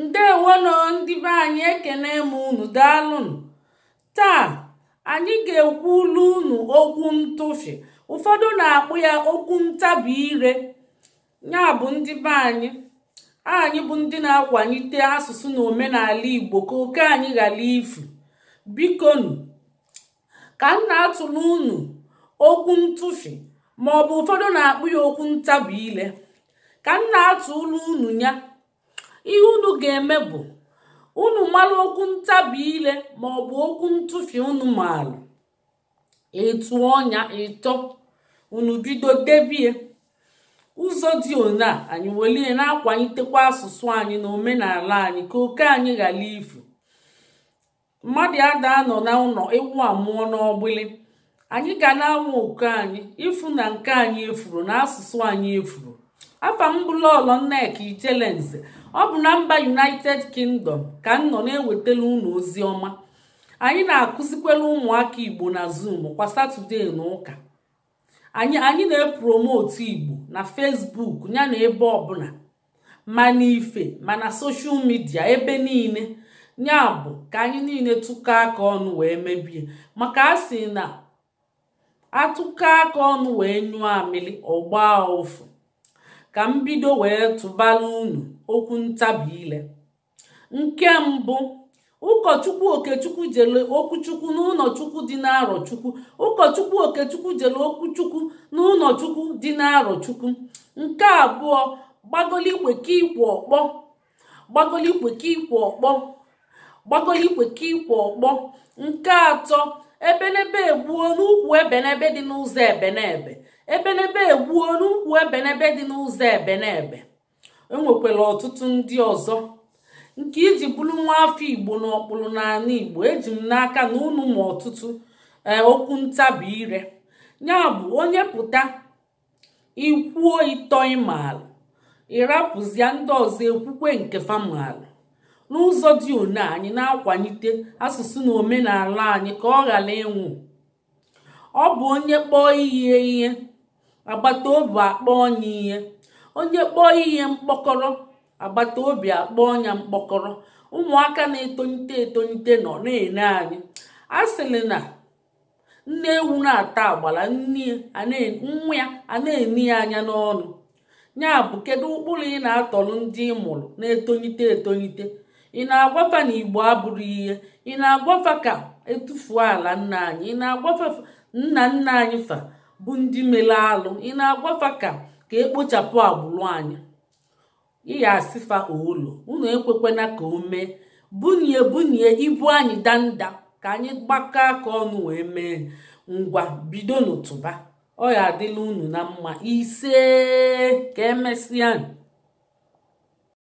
ndewono ndị be anyị ekene m unu daalụnụ taa anyị ga ekwu ụlọ unu okwu ntụfi ụfọdụ na-akpụ ya okwu ntabi ire ya bụ ndị anyị anyị bụ ndị na-akwalite asụsụ na omenala igbo ka oke anyị ghara ifu bikonu ka m na-atụrụ unu okwu ntụfi ma ụfọdụ na-akpụ ya okwu ntabi ile ka m na ụlọ unu ya ihe unu ga-eme bụ unu mara okwu ntabi ile ma ọ bụ okwu ntụfi unu maara etu ọnya ịtọ unu bido debie ụzọ dị one a anyị welie na-akwalitekwa asụsụ anyị na omenala anyị ka oke anyị ghara ifu mmadụ ada nọ na ụlọ ewu amụọ n'ọgbịlị anyị ga na anwụ oke anyị ịfụ na nke anyị efuru na asụsụ anyị efuru afa m bụ Lolo Nneka Ijelense ọ bụ na mba United Kingdom ka m nọ na-ewetala unu ozi ọma anyị na-akụzikwela ụmụaka Igbo na Zoom kwa Satọde na ụka anyị na-epromotu Igbo na fesbuk ya na ebe ọbụla ma n'ife ma na soshal midia ebe niile ya bụ ka anyị niile tụkọ aka ọnụ wee mebie maka a sị na atụkọ aka ọnụ wee nyụọ amịlị ọgbaa gbaa ụfụ ka m bido wee tụbara unu okwu ntabi ile nke mbụ ụkọchukwu okechukwu jere okwuchukwu n'ụlọchukwu dị n'arọchukwu ụkọchukwu okechukwu jere okwuchukwu n'ụlọchukwu dị n'arọchukwu nke abụọ gbagolikwe ka ikwe ọkpọ gbagolikwe ka ikwe ọkpọ gbagolikwe ka ikwe ọkpọ nke atọ ebenebe gbuo n'ukwu ebenebe dị n'ụzọ ebenebe ebenebe egbuo n'ukwu ebenebe dị n'ụzọ ebenebe enwekwara ọtụtụ ndị ọzọ nke iji bụrụ nwa afọ igbo na ọkpụrụ n'ala igbo eji m n'aka na unu ma ọtụtụ e, okwu ntabi ire ya bụ onye pụta ikwuo ịtọ ịmaala ịrapụzia ndị ọzọ ekwukwe nke famaala n'ụzọ dị one anyị na-akwalite asụsụ na omenala anyị ka ọ ghara ịnwụ ọ bụ onye kpọọ ihe ihe agbata obi akpọọ ya ihe onye kpọọ ihe mkpọkọrọ agbata obi akpọọ ya mkpọkọrọ ụmụaka na-etonite etonite nọ na-ene anyị a sịrị na nne ewu na-ata agbala nwa ya a na-eni ya anya n'ọnụ ya bụ kedu ụkpụrụ ị na-atọrọ ndị ị mụrụ na-etonite etonite ị na-agwafa na igbo abụrụ ihe ị na-agwafa ka etufuo ala nna anyị ị na-agwafa nna nna anyị fa bụ ndị mere alụ ị na-agwafa ka ka ekpochapụ agbụrụ anyị ịya asịfa olu unu ekwekwena ka o mee bunye bunye ibu anyị danda ka anyị gbakọọ aka ọnụ wee mee ngwa bido n'ụtụba ọ ya adịla unu na mma ise ka emesịa